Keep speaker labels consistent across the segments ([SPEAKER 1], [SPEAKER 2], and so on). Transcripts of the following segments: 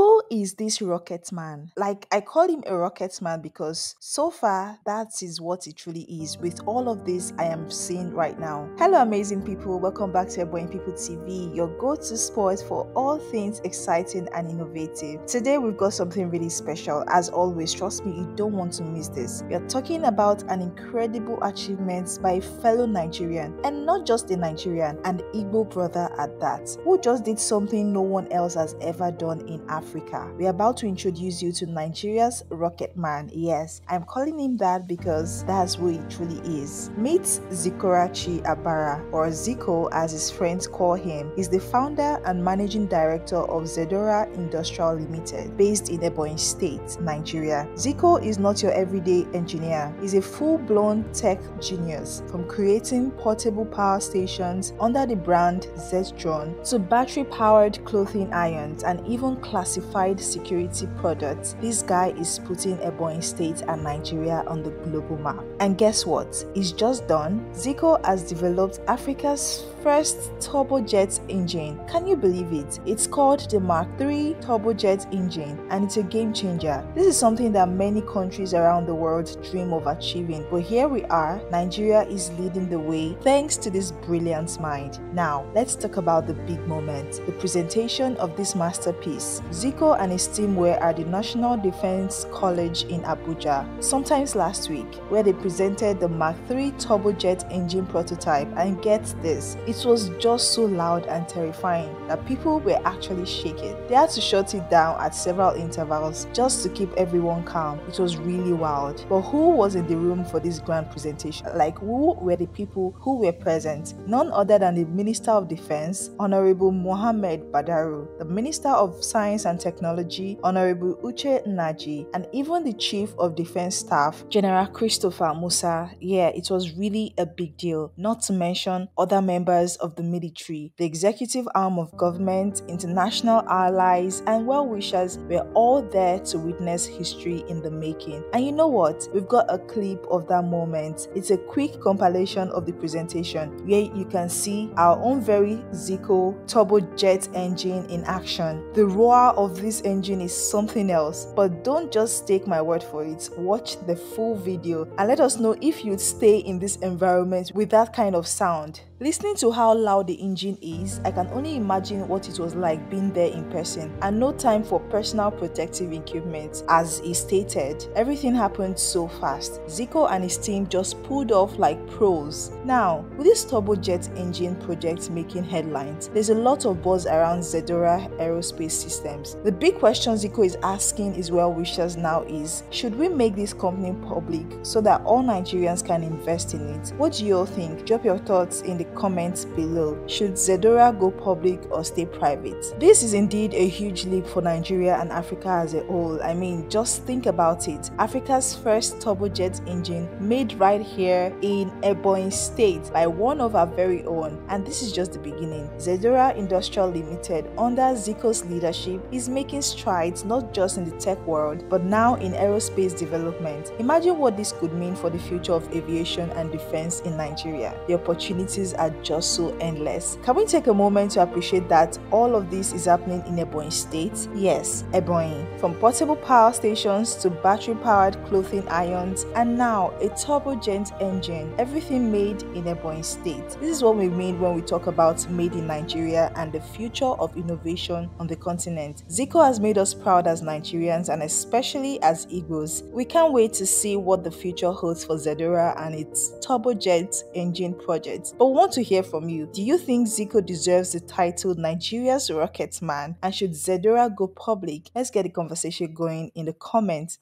[SPEAKER 1] who is this rocket man? Like, I call him a rocket man because so far, that is what it truly is with all of this I am seeing right now. Hello, amazing people. Welcome back to Airborne People TV, your go to spot for all things exciting and innovative. Today, we've got something really special. As always, trust me, you don't want to miss this. We are talking about an incredible achievement by a fellow Nigerian, and not just a Nigerian, an Igbo brother at that, who just did something no one else has ever done in Africa Africa. We're about to introduce you to Nigeria's Rocket Man. Yes, I'm calling him that because that's who he truly is. Meet Zikorachi Abara, or Zico as his friends call him, is the founder and managing director of Zedora Industrial Limited, based in Ebonyi State, Nigeria. Zico is not your everyday engineer, he's a full blown tech genius from creating portable power stations under the brand Zetron to battery powered clothing irons and even classic Certified security product. this guy is putting Ebony State and Nigeria on the global map. And guess what? It's just done. Zico has developed Africa's first turbojet engine. Can you believe it? It's called the Mark III turbojet engine and it's a game changer. This is something that many countries around the world dream of achieving, but here we are, Nigeria is leading the way thanks to this brilliant mind. Now, let's talk about the big moment, the presentation of this masterpiece. Zico and his team were at the National Defense College in Abuja sometimes last week, where they presented the Mark 3 turbojet engine prototype. And get this, it was just so loud and terrifying that people were actually shaking. They had to shut it down at several intervals just to keep everyone calm. It was really wild. But who was in the room for this grand presentation? Like, who were the people who were present? None other than the Minister of Defense, Honorable Mohammed Badaru, the Minister of Science and Technology, Honorable Uche Naji, and even the Chief of Defense Staff, General Christopher Musa, yeah, it was really a big deal, not to mention other members of the military, the executive arm of government, international allies, and well wishers were all there to witness history in the making. And you know what? We've got a clip of that moment. It's a quick compilation of the presentation where you can see our own very Zico turbojet engine in action, the roar of this engine is something else. But don't just take my word for it, watch the full video and let us know if you'd stay in this environment with that kind of sound. Listening to how loud the engine is, I can only imagine what it was like being there in person and no time for personal protective equipment. As he stated, everything happened so fast. Zico and his team just pulled off like pros. Now, with this turbojet engine project making headlines, there's a lot of buzz around Zedora Aerospace Systems the big question Zico is asking his well wishers now is should we make this company public so that all Nigerians can invest in it? What do you all think? Drop your thoughts in the comments below. Should Zedora go public or stay private? This is indeed a huge leap for Nigeria and Africa as a whole. I mean, just think about it. Africa's first turbojet engine made right here in Ebony State by one of our very own. And this is just the beginning. Zedora Industrial Limited, under Zico's leadership, is is making strides not just in the tech world, but now in aerospace development. Imagine what this could mean for the future of aviation and defense in Nigeria. The opportunities are just so endless. Can we take a moment to appreciate that all of this is happening in Ebonyi State? Yes, Ebonyi. From portable power stations to battery powered clothing irons, and now a turbojet engine, everything made in Ebonyi State. This is what we mean when we talk about made in Nigeria and the future of innovation on the continent. Zico has made us proud as Nigerians and especially as Igbos. We can't wait to see what the future holds for Zedora and its turbojet engine project. But we want to hear from you. Do you think Zico deserves the title Nigeria's Rocket Man? And should Zedora go public? Let's get the conversation going in the comments.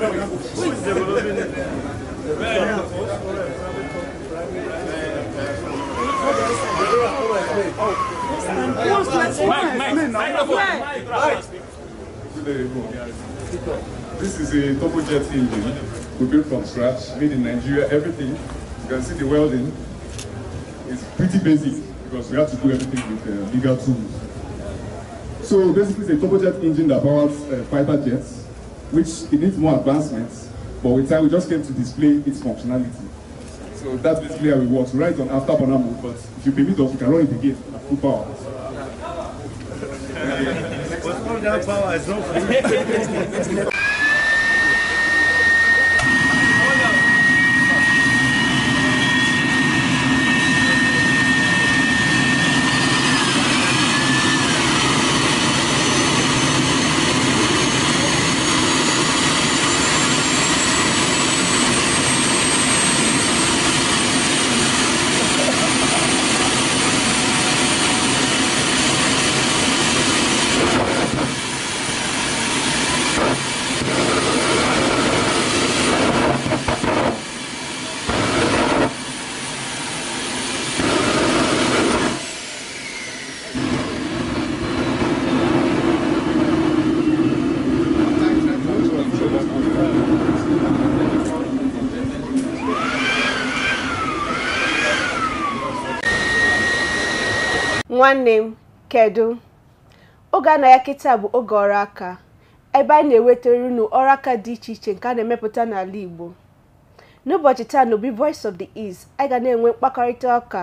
[SPEAKER 2] This is a turbojet jet engine we built from scratch, made in Nigeria, everything. You can see the welding. It's pretty basic because we have to do everything with uh, bigger tools. So basically it's a turbojet engine that powers uh, fighter jets which it needs more advancements, but with time we just came to display its functionality. So that's basically how it works. We run it on after burner but if you permit us, we can run it again at full power. power is not nwanne m kedu oge a na ya kịta bụ oge ọrụ aka ebe anyị na-ewetara unu ọrụ aka dị iche iche nke a na-emepụta n'ala Igbo n'ụbọchị taa n'obi Voice of the East anyị ga na-enwe mkpakọrịta ọka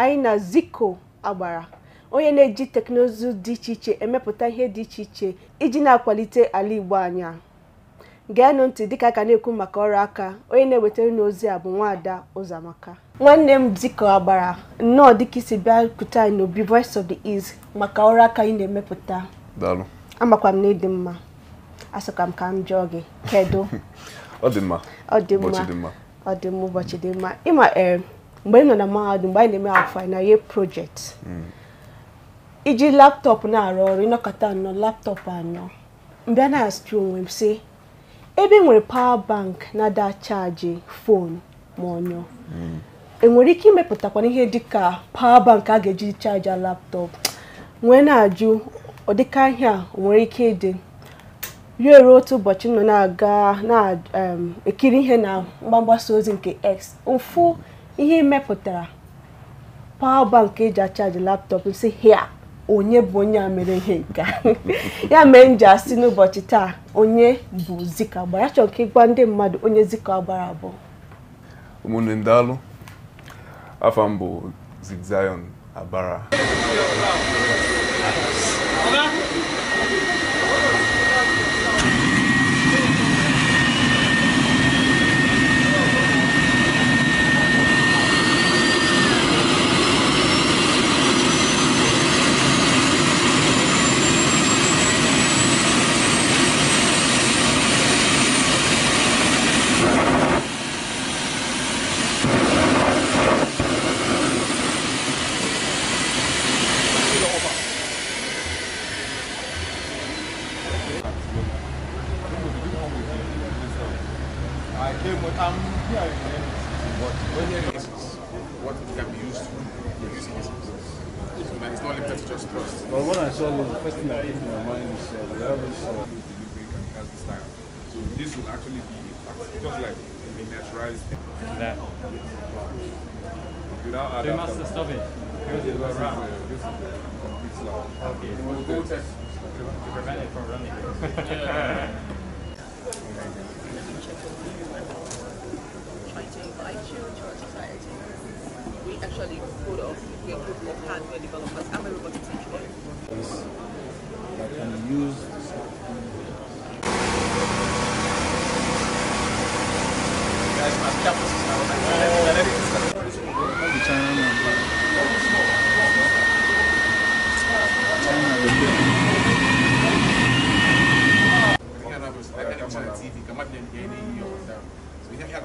[SPEAKER 2] anyị na ziko Agbara onye na-eji teknụzụ dị iche iche emepụta ihe dị iche iche iji na-akwalite ala Igbo anya. geenụ ntị dịka aka na-ekwu maka ọrụ aka onye na-ewetara n'ozi a bụ nwaada ụzọamaka nwanne m dịka agbara nnọọ dịka isi bịa kute anyị n'obi voice of the east maka ọrụ aka ị na-emepụta amakwa m na ịdị mma asọka m ka m jụọ gị kedu ọ dị mma dị mma ọ dị mma ụbọchị dị mma ịma mgbe m nọ na mahadum mgbe anyị na-eme afọ anyị na ye project hmm. iji laptọpụ na-arụ ọrụ ịnọkọta anọ laptọpụ anọ mbịa na-asị onwe m sị ebe enwere pawa bank na-ada chaji fonu ma ọnyụ hmm. enwere ike imepụtakwana ihe dịka pawa bank a ga-eji chaja laptọpụ nwee na-ajụ ọdịka ihe a nwere ike ịdị ruo ruo otu ụbọchị nọ na-aga na-ekiri ihe na mgbasa ozi nke x ụfụ ihe mepụtara pawa bank eji achaji laptọpụ si hia onye bụ onye a mere ihe nke ya mere m asị n'ụbọchị taa onye bụ Zika gbara ya chọrọ ka ịgwa ndị mmadụ onye Zika Agbara bụ ụmụnne ndalụ afọ mbụ bụ Zigzayon Agbara but I'm um, here What? what it can be used for, using It's not limited to just trust. Well, when I saw this, the first thing that came to my mind is uh, we have this uh, delivery can has this So this will actually be just like miniaturized. That. Without you must stop it. This is the uh, This is complete uh, uh, Okay. to prevent it from running. to Children Society, we actually put off, a group of hardware developers. and am a robotics can be guys must campus now. Like,
[SPEAKER 1] everything's China.
[SPEAKER 2] China. China you can't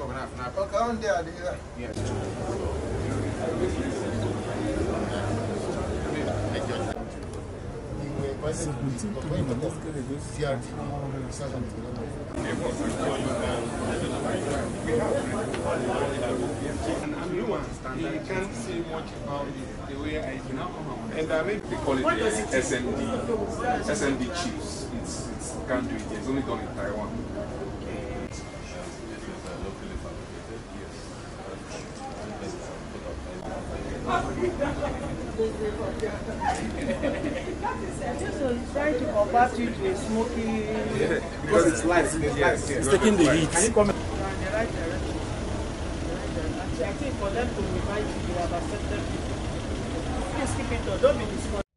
[SPEAKER 2] see much about the way I do now. And I mean, they call it the SND, SND Chiefs. It's, it's, can't do it. It's only done in Taiwan. trying to convert you to a smoky. Yeah, because it's light. It's, it's, taking the heat. Can you come? I think for them to invite you, you have accepted people. Please keep it Don't be discouraged.